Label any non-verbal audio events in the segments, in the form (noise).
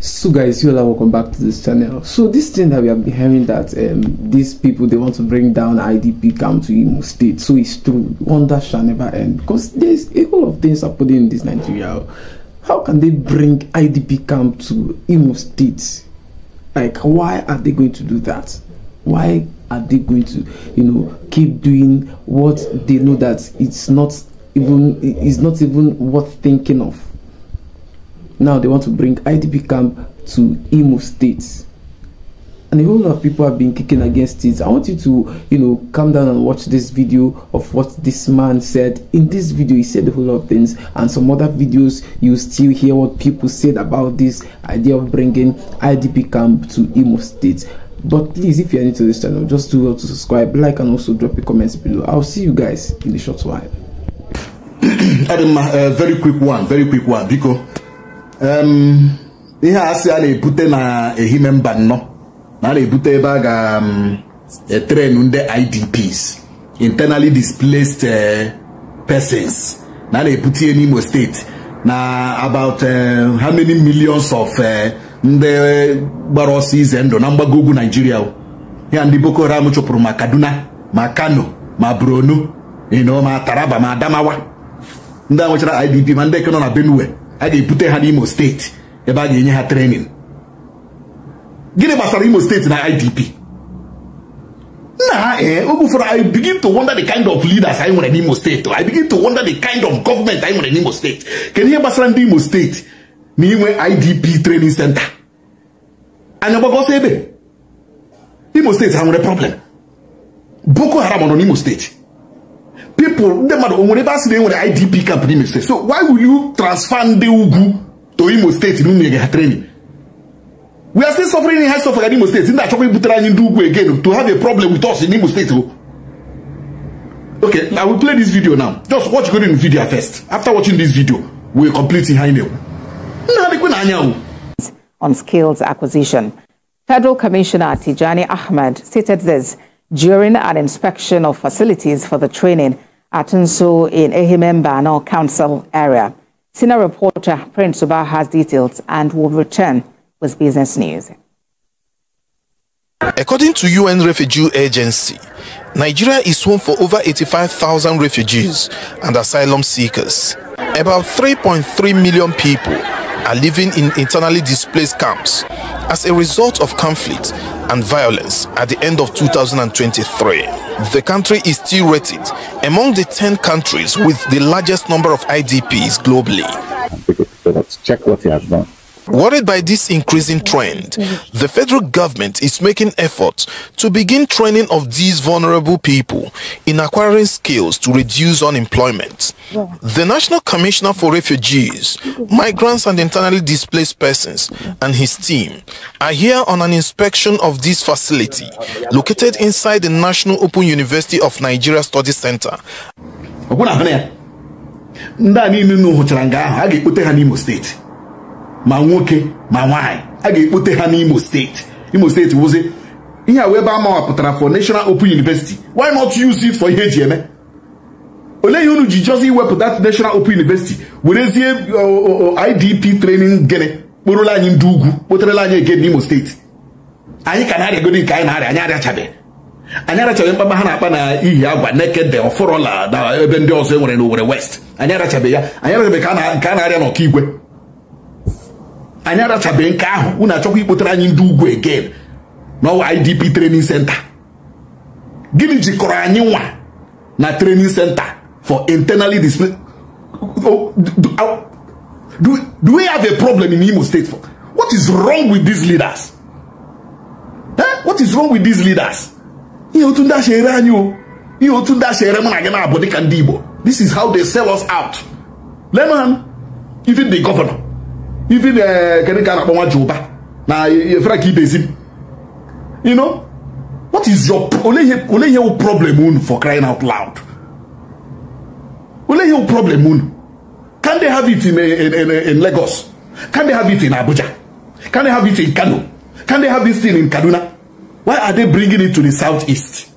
so guys you all welcome back to this channel so this thing that we have been hearing that um, these people they want to bring down idp camp to imo state so it's true wonder shall never end because there's a whole of things happening in this nigeria how can they bring idp camp to imo state like why are they going to do that why are they going to you know keep doing what they know that it's not even it's not even worth thinking of now they want to bring IDP camp to Imo State. And a whole lot of people have been kicking against it. I want you to, you know, come down and watch this video of what this man said. In this video, he said a whole lot of things, and some other videos you still hear what people said about this idea of bringing IDP camp to Imo State but please if you're new to this channel just do well to subscribe like and also drop your comments below i'll see you guys in a short while (clears throat) Adam, uh, very quick one very quick one because ihe a asị a na-ebute na ehime mba nnọ na a na-ebute ebe a ga-etrenu e, ndị IDPs internally displaced eh, persons na a na-ebute ihe n'Imo steeti na about eh, how many millions of eh, ndị gbara ọsọ ize ndụ na mgbago ugwu Nigeria ya ndị Boko Haram chụpụrụ ma Kaduna ma Kano ma Borno ma Taraba ma Adamawa ndị a nwechara IDP ma ndị eke nọ na Benue a ga-ebute ha n'Imo steeti ebe a ga-enye ha trenin gịnị gbasara Imo steeti na IDP nna ha ee oge ụfọdụ I begin to wonder the kind of leaders anyị nwere n'Imo steeti oh. I begin to wonder the kind of government anyị nwere n'Imo steeti kedu ihe gbasara ndị Imo steeti na inwe IDP training center anya gbagọsọ ebe Imo steeti ha nwere problem Boko Haram nọ n'Imo steeti people ndị mmadụ o nwere ebe a idp camp n'ime so why will you transfer the ugu to imo in na unyere training we are still suffering in high suffer in imo Isn't that ibutere anyị ndị ugwu again to have a problem with us in imo State? Oh. okay i will play this video now just watch the video first after watching this video we are completely high now. on skills acquisition federal commissioner tijani ahmed stated this during an inspection of facilities for the training at in in no Council area. Senior reporter Prince Suba has details and will return with business news. According to UN Refugee Agency, Nigeria is home for over 85,000 refugees and asylum seekers. About 3.3 million people are living in internally displaced camps as a result of conflict and violence at the end of 2023. The country is still rated among the 10 countries with the largest number of IDPs globally. Let's check what he has done. Worried by this increasing trend, the federal government is making efforts to begin training of these vulnerable people in acquiring skills to reduce unemployment. The National Commissioner for Refugees, Migrants and Internally Displaced Persons and his team are here on an inspection of this facility located inside the National Open University of Nigeria Study Center. ndị a niile unu hụchara nga ahụ ma nwoke ma nwaanyị a ga-ekpote ha n'Imo steeti Imo steeti wụzi ihe a wee ebe amawapụtara for National Open University why not use it for ihe eji eme olee ihe unu ji jọzi iwepụta National Open University werezie IDP training gịnị kporụla anyị ndị ugwu kpoterela anyị ege n'Imo steeti anyị ka na-arịagodi nke anyị na-arịa anyị arịachabeghị anyị arachabeghị mkpagba ha na-akpa na ihi agwa nekede ọfọrọla na ebe ndị ọzọ e nwere n'Owerri West anyị arachabeghị ya anyị arachabeghị ka a na-arịa n'Ọkigwe anyị arachabeghị nke ahụ unu achọkwa ikpotara anyị ndị ugwu egen n'ọwa idp training center gịnị jikọrọ anyị nwa na training center for internally displaced do, we have a problem in Imo state for what is wrong with these leaders eh? what is wrong with these leaders ihe otu ndị ashere anyị o ihe otu ndị ashere mụ na gị na-abụ dịka ndị Igbo this is how they sell us out lemon even the governor even kedu ka a na-akpọ nwa Jehova na efere ka idezi you know what is your ole ihe ole problem unu for crying out loud ole ihe problem unu can they have it in eh, in in, in Lagos can they have it in Abuja can they have it in Kano can they have this thing in Kaduna why are they bringing it to the southeast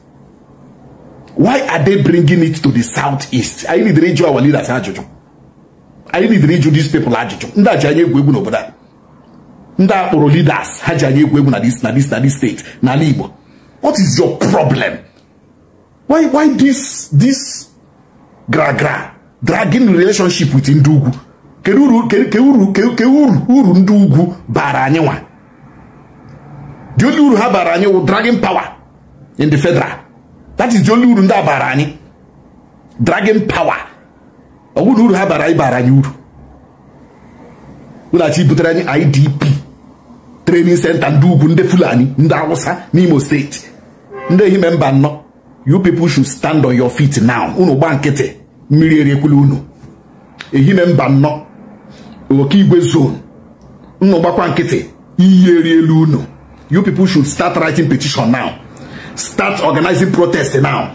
why are they bringing it to the southeast anyị lidere ịjụ our leaders ajụjụ anyị lidere ịjụ dis pepl ajụjụ ndị a ji anya egwu egwu n'obodo a ndị a kpọrọ ha ji anya egwu egwu na dis na dis na dis steeti n'ala Igbo what is your problem why why this this gragra dragging relationship with ndị ugwu kedu uru kedu uru ndị ugwu bara anyị nwa the only uru ha bara anyị wụ dragging power in the federal that is the only uru ndị a bara anyị dragging power ọnwụ na uru ha bara anyị bara anyị uru ụlachi butere anyị idp trening senta ndị ugwu ndị fulani ndị awụsa n'imo steeti ndị ehime mba nọ you people should stand on your feet now unu gba nkịtị mmiri eriekwula unu ehime mba nọ oke igwe zon unu gbakwa nkịtị iyi elu unu you people should start writing petition now start organizing protest now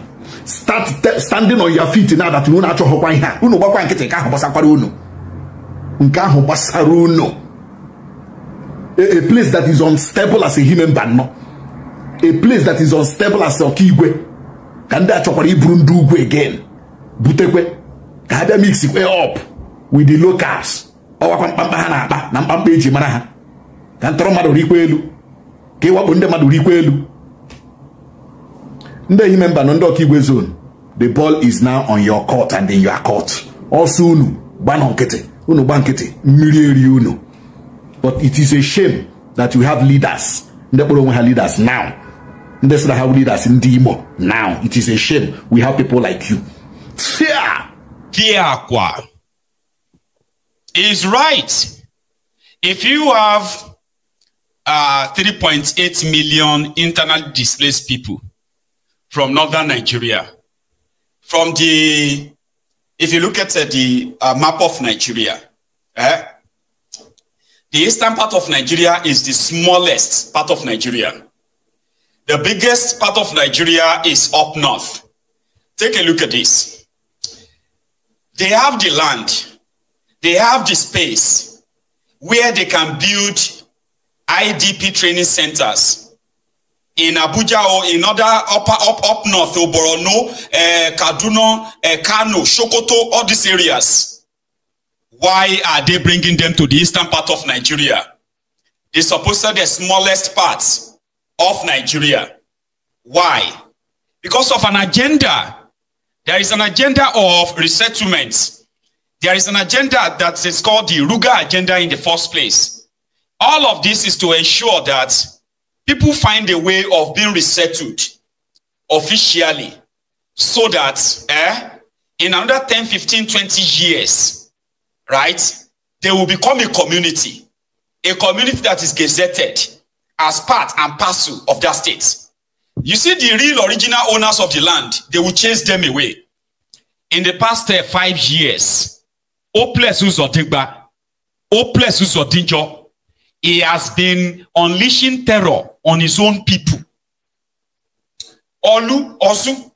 start standing on your feet now that unu achọghọkwa ihe a unu gbakwa nkịtị nke ahụ gbasakwara unu nke ahụ gbasara unu a place that is unstable as a human being no a place that is unstable as igwe ka ndị a chọkwara iburu ndị ugwu again butekwe ka ha bịa mix kwe up with the locals ọwakwa mkpamkpa ha na-akpa na mkpamkpa eji mara ha ka ntọrọ mmadụ rikwa elu ka ịwakpo ndị mmadụ rikwa elu ndị member na zone the ball is now on your court and in your court Also, unu gbanọ nkịtị unu gba nkịtị mmiri eri unu but it is a shame that we have leaders ndị kpọrọ leaders now ndị sị leaders in demo now it is a shame we have people like you Tiakwa is right if you have uh, 3.8 million internally displaced people from northern Nigeria. From the, if you look at uh, the uh, map of Nigeria, eh, the eastern part of Nigeria is the smallest part of Nigeria. The biggest part of Nigeria is up north. Take a look at this. They have the land, they have the space where they can build IDP training centers in Abuja or in other upper up up north, Oborono, uh, eh, Kaduna, uh, Kano, Sokoto, all these areas. Why are they bringing them to the eastern part of Nigeria? They supposed the smallest part of Nigeria. Why? Because of an agenda. There is an agenda of resettlement. There is an agenda that is called the Ruga agenda in the first place. All of this is to ensure that people find a way of being resettled officially so that eh, in another 10, 15, 20 years, right, they will become a community, a community that is gazetted as part and parcel of that state. You see, the real original owners of the land, they will chase them away. In the past uh, five years, Oples Uzodigba, Oples Uzodinjo, he has been unleashing terror on his own people. Olu, Osu.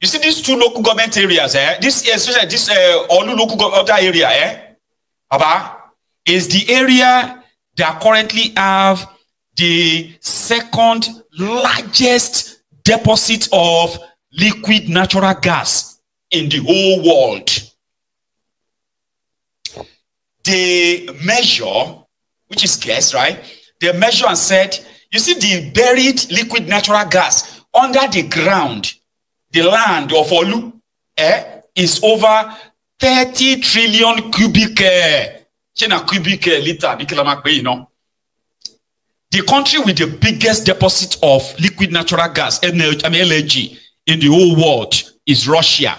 You see these two local government areas, eh? This, eh, especially this uh, Olu local government area, eh? is the area that currently have the second largest deposit of liquid natural gas in the whole world. They measure, which is gas, right? They measure and said You see the buried liquid natural gas under the ground, the land of Olu eh, is over 30 trillion cubic eh, cubic eh, liter. The country with the biggest deposit of liquid natural gas, LNG, I mean LNG in the whole world is Russia.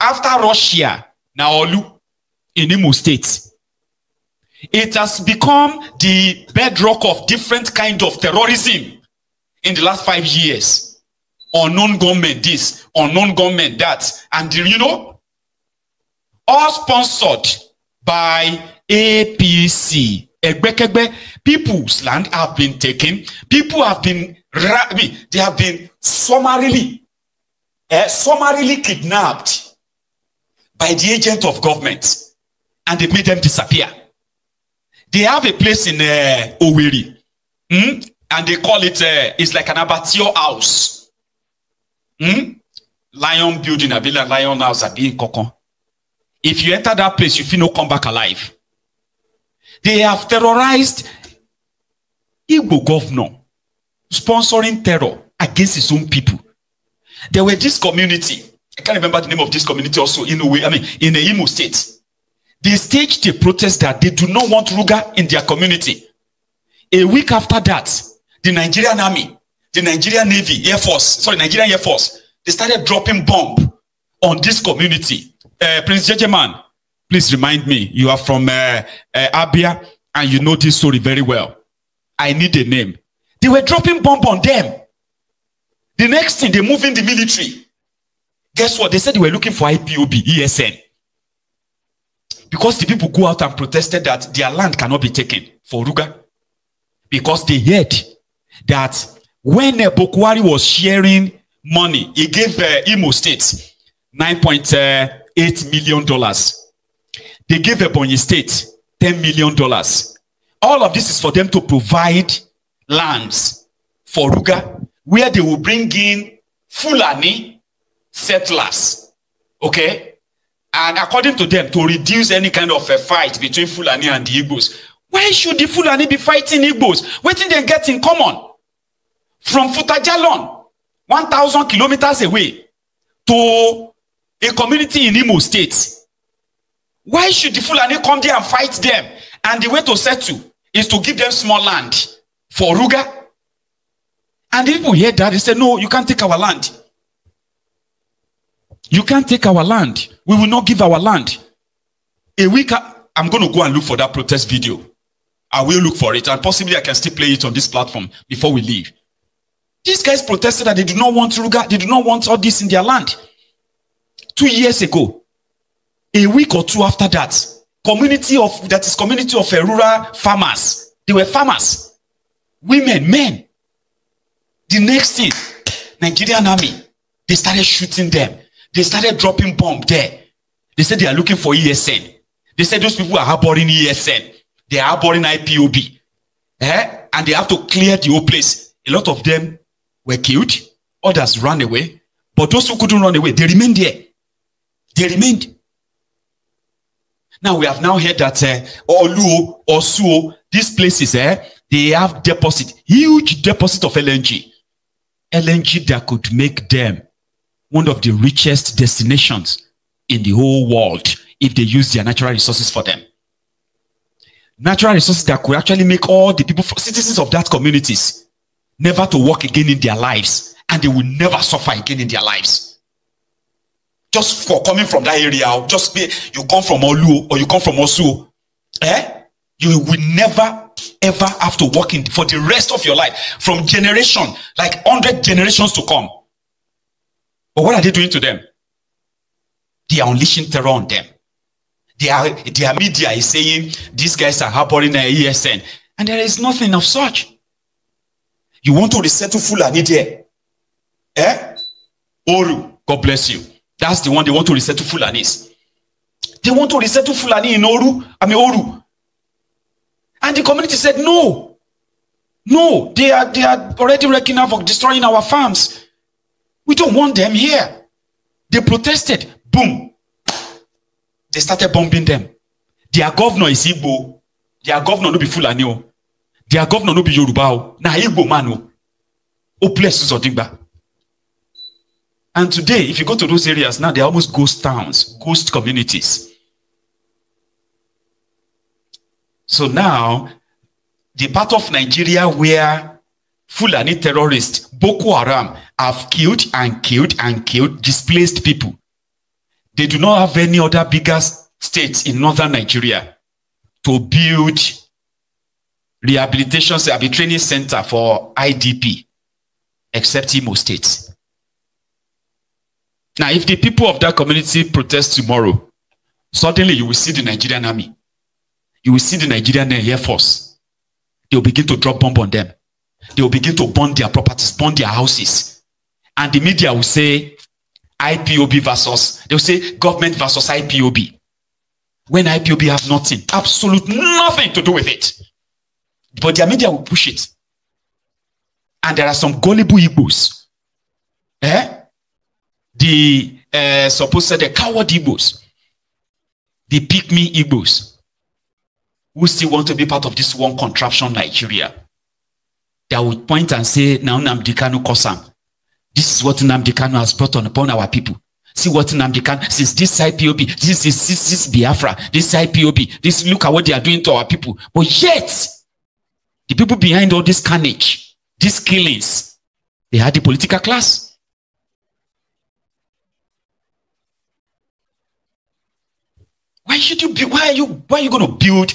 After Russia, now Olu in Imo State. It has become the bedrock of different kind of terrorism in the last five years. Unknown government this, unknown government that. And you know, all sponsored by APC. people's land have been taken. People have been, they have been summarily, uh, summarily kidnapped by the agent of government. And they made them disappear. They have a place in uh, Oweri, hmm? and they call it, uh, it's like an abattoir house. Hmm? Lion building, a like lion house, a being kokon. If you enter that place, you feel no come back alive. They have terrorized Igbo governor, sponsoring terror against his own people. There were this community, I can't remember the name of this community also, in a way, I mean, in the Imo state. They staged a protest that they do not want Ruga in their community. A week after that, the Nigerian army, the Nigerian Navy, Air Force, sorry, Nigerian Air Force, they started dropping bomb on this community. Uh, Prince Jejeman, please remind me, you are from uh, uh, Abia and you know this story very well. I need a name. They were dropping bomb on them. The next thing, they move in the military. Guess what? They said they were looking for IPOB, ESN. Because the people go out and protested that their land cannot be taken for Ruga. Because they heard that when Bokwari was sharing money, he gave uh, Imo State $9.8 uh, million. They gave Ebony State $10 million. All of this is for them to provide lands for Ruga, where they will bring in Fulani settlers. Okay? and according to them to reduce any kind of a fight between fulani and the igbos why should the fulani be fighting igbos wetin dem get in common from futajalon one thousand kilometres away to a community in imo state why should the fulani come there and fight them and the way to settle is to give them small land for ruga and the people hear that they say no you can't take our land You can't take our land. We will not give our land. A week, I'm going to go and look for that protest video. I will look for it, and possibly I can still play it on this platform before we leave. These guys protested that they do not want Ruga, they do not want all this in their land. Two years ago, a week or two after that, community of that is community of uh, rural farmers. They were farmers, women, men. The next thing, Nigerian army, they started shooting them. They started dropping bomb there. They said they are looking for ESN. They said those people are harboring ESN. They are harboring IPOB. Eh? And they have to clear the whole place. A lot of them were killed. Others ran away. But those who couldn't run away, they remained there. They remained. Now we have now heard that uh, Olu or Suo, these places, eh, they have deposit, huge deposit of LNG. LNG that could make them one of the richest destinations in the whole world if they use their natural resources for them. Natural resources that could actually make all the people, citizens of that communities, never to work again in their lives and they will never suffer again in their lives. Just for coming from that area, just be, you come from Olu or you come from Osu, eh? You will never ever have to work in for the rest of your life from generation, like 100 generations to come. But what are they doing to them? They are unleashing terror on them. Their, their media is saying these guys are harboring an e ESN. And there is nothing of such. You want to resettle Fulani there? Eh? Oru, God bless you. That's the one they want to resettle Fulanis. They want to resettle Fulani in Oru, I mean Oru. And the community said, no. No, they are, they are already wrecking havoc, destroying our farms. We don't want them here. They protested. Boom. They started bombing them. Their governor is Igbo. Their governor no be Fulani o. Their governor no be Yoruba o. Na Igbo man o. O bless Zodigba. And today, if you go to those areas now, they're almost ghost towns, ghost communities. So now, the part of Nigeria where Fulani terrorists, Boko Haram, have killed and killed and killed displaced people. They do not have any other bigger states in northern Nigeria to build rehabilitation and training center for IDP, except Imo State. Now, if the people of that community protest tomorrow, suddenly you will see the Nigerian army. You will see the Nigerian Air Force. They'll begin to drop bomb on them. They will begin to burn their properties, burn their houses. And the media will say IPOB versus, they'll say government versus IPOB. When IPOB have nothing, absolute nothing to do with it. But their media will push it. And there are some gullible Igbos. Eh? The uh, supposed the coward Igbos. The pick me Igbos. Who still want to be part of this one contraption Nigeria. They would point and say, now Namdi Kanu Kosam. This is what Namdi Kanu has brought on upon our people. See what Namdi Kanu, since this IPOB, this is this, this Biafra, this IPOB, this look at what they are doing to our people. But yet, the people behind all this carnage, these killings, they are the political class. Why should you be? Why are you? Why are you going to build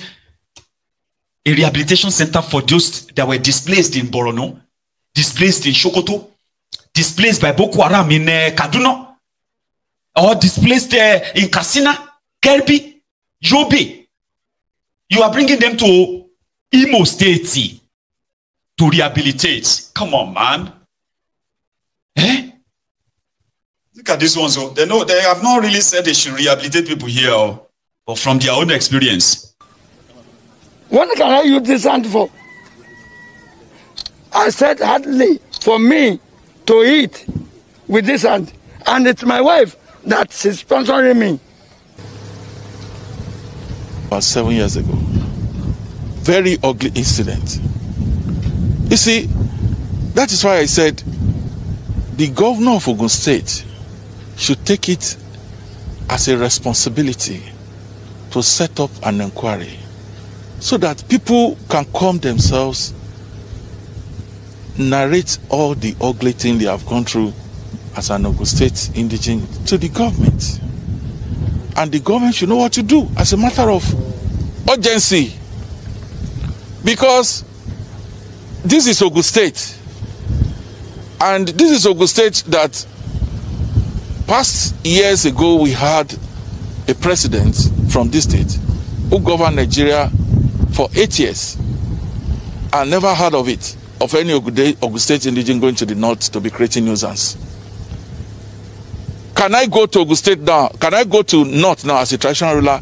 a rehabilitation center for those that were displaced in Borono, displaced in Shokoto, displaced by Boko Haram in uh, Kaduna, or displaced uh, in Katsina, Kerbi, Yobe. You are bringing them to Imo State to rehabilitate. Come on, man. Eh? Look at this one. So oh. they know they have not really said they should rehabilitate people here, or, oh. or from their own experience. What can I use this hand for? I said hardly for me to eat with this hand. And it's my wife that is sponsoring me. About seven years ago, very ugly incident. You see, that is why I said the governor of Ogun State should take it as a responsibility to set up an inquiry so that people can calm themselves, narrate all the ugly thing they have gone through as an Ogun State indigent to the government. And the government should know what to do as a matter of urgency. Because this is Ogun State. And this is Ogun State that past years ago we had a president from this state who governed Nigeria for eight years. I never heard of it, of any Ogun State indigenous going to the north to be creating nuisance. Can I go to Ogun State now? Can I go to north now as a traditional ruler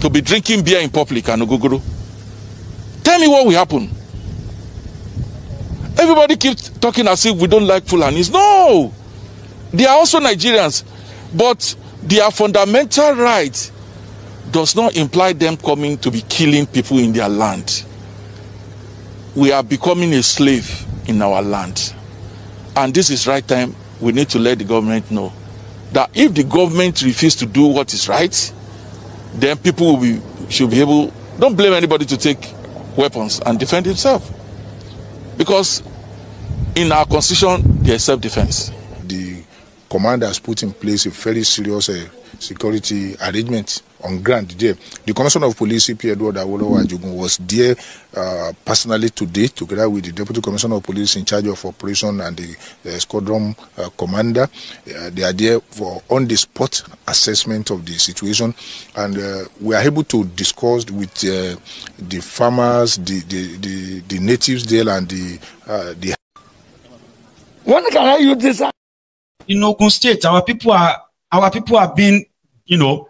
to be drinking beer in public and Oguguru? Tell me what will happen. Everybody keeps talking as if we don't like Fulanis. No! They are also Nigerians, but their fundamental rights does not imply them coming to be killing people in their land. We are becoming a slave in our land. And this is right time we need to let the government know that if the government refuses to do what is right, then people will be, should be able, don't blame anybody to take weapons and defend himself. Because in our constitution, there's self defense. The command has put in place a very serious uh, security arrangement on ground there. The Commissioner of Police, C.P. Edward Awolowo was there uh, personally today, together with the Deputy Commissioner of Police in charge of operation and the, the squadron uh, commander. Uh, they are there for on-the-spot assessment of the situation, and uh, we are able to discuss with uh, the farmers, the, the, the, the, natives there, and the uh, the. When can I use this? in Ogun State, our people are our people are being, you know,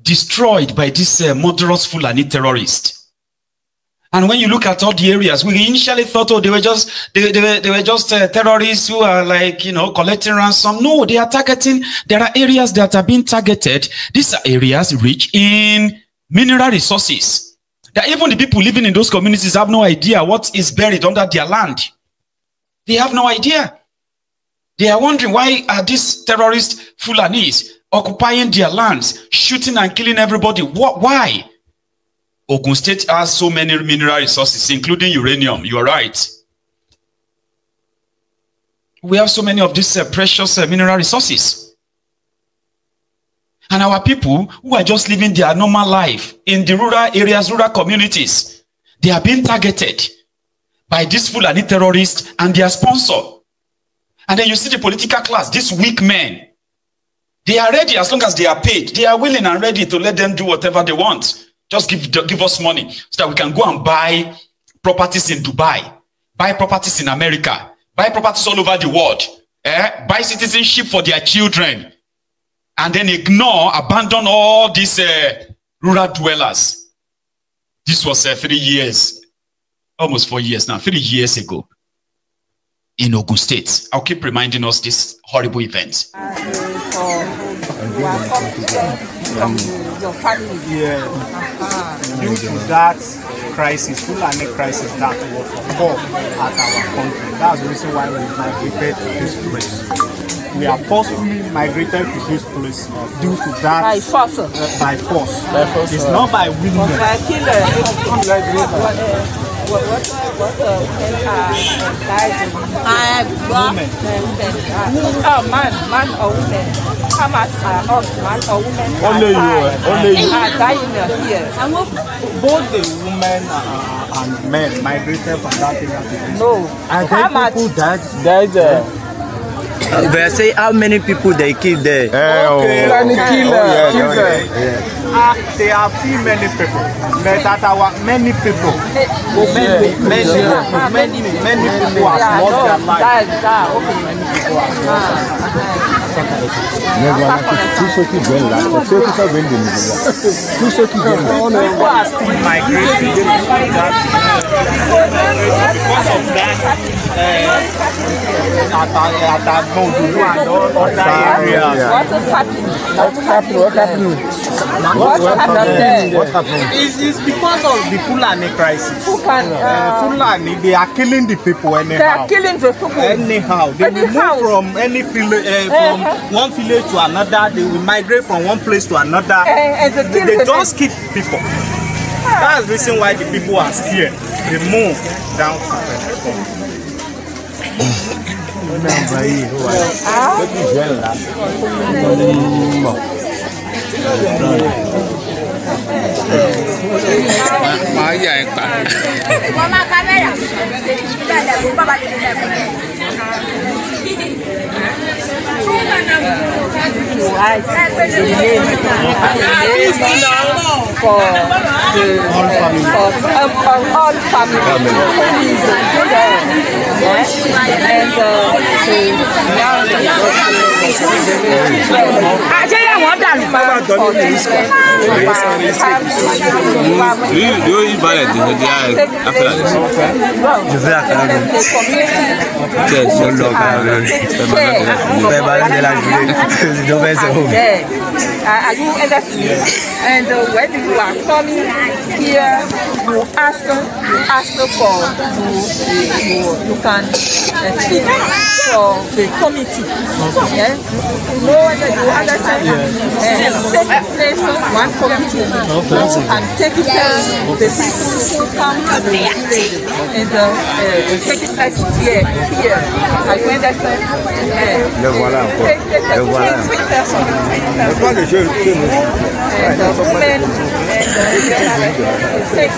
destroyed by this uh, murderous Fulani terrorist. And when you look at all the areas, we initially thought, oh, they were just they, they, were, they were just uh, terrorists who are like you know collecting ransom. No, they are targeting. There are areas that are being targeted. These are areas rich in mineral resources. That even the people living in those communities have no idea what is buried under their land. They have no idea. They are wondering why are these terrorist Fulanis occupying their lands, shooting and killing everybody? What, why? Ogun State has so many mineral resources, including uranium. You are right. We have so many of these uh, precious uh, mineral resources. And our people who are just living their normal life in the rural areas, rural communities, they are being targeted by these Fulani terrorists and their sponsor. And then you see the political class, these weak men. They are ready as long as they are paid. They are willing and ready to let them do whatever they want. Just give, give us money so that we can go and buy properties in Dubai, buy properties in America, buy properties all over the world, eh? buy citizenship for their children, and then ignore, abandon all these uh, rural dwellers. This was uh, three years, almost four years now, three years ago in Ogun State. I'll keep reminding us this horrible event. Due to that crisis, Fulani crisis that was occurred at our country. That's the reason why we migrated to this place. we are forcefully migrated to this place uh, due to that. By force. Uh, by force. By force. It's uh, not by willingness. By killer. What, what, what, what uh, I got women. Oh, man, man or woman. How much are us, man or woman? Only you, uh, only you. Are dying here. Both the women uh, and men migrated from that area. No. And then people died. Died. They say how many people they kill there? Hey, okay, oh, okay. killer. Oh, yeah, killer. Okay. Yeah. Uh, there are few many people. that our many people, many, many, many, many people have lost their life. Many people have lost their life. Nẹ́gbàá People because of that, uh, at, uh, at that Modu and What happening? happened? What happened? What, happened It's, it's because of the Fulani crisis. Who uh, uh, Fulani, they are killing the people anyhow. They are killing the people. Anyhow. They anyhow. will move from, any village, uh, from uh-huh. one village to another. They will migrate from one place to another. Uh, they, they just kill people. That's the reason why the people are scared. They move down to Pentecost. Ó náà bá yìí ó wà ó kì í jẹ́ ńlá ó ní mọ̀ máa yà ẹ pa to hide the name, the name for the all family. For, um, for all family. family. Who is there? Yeah? And uh, to now the Ajẹ́yẹ̀ wọ́n dànù máa ń kọ́ ní ìsọ̀rọ̀. Yóò yí balẹ̀ dìbò di àkàrà lẹ̀. Jùfẹ́ àkàrà lẹ̀. Bẹ́ẹ̀ ló lọ bá rẹ̀. Bẹ́ẹ̀ bá rẹ̀. Bella Julie. Don't mess at home. are you understand? Yeah. And uh, when you are coming here, you ask, you ask for, you, you, you can uh, speak for the committee. Okay. Yeah? You know, you understand? Yeah. Uh, place one committee okay. who can take care of the people who come to the village and uh, uh, take it as here, here. Are you understand? Uh, le voilà Le voilà. Le voilà. Le Le voilà. Six.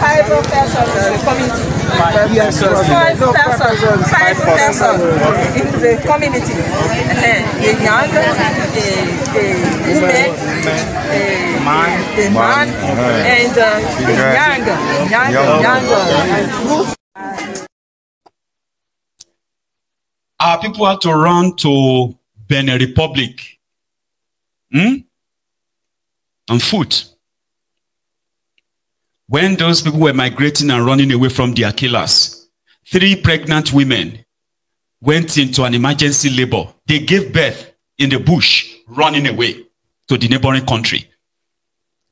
Five persons in the community. Five persons. Five persons. in the community. A young, a, a woman, a, man, a man, and a young, young, young group. Our people had to run to Benin Republic. Hmm? On foot. When those people were migrating and running away from their killers, three pregnant women went into an emergency labor. They gave birth in the bush, running away to the neighboring country.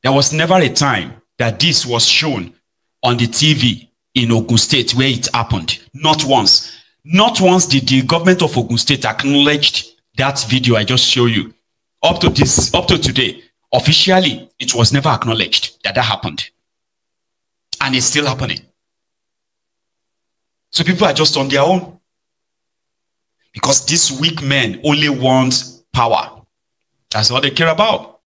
There was never a time that this was shown on the TV in Ogun State where it happened. Not once. Not once did the government of Ogun State acknowledge that video I just showed you. Up to this, up to today, officially, it was never acknowledged that that happened and it's still happening. So people are just on their own because these weak men only want power. That's all they care about.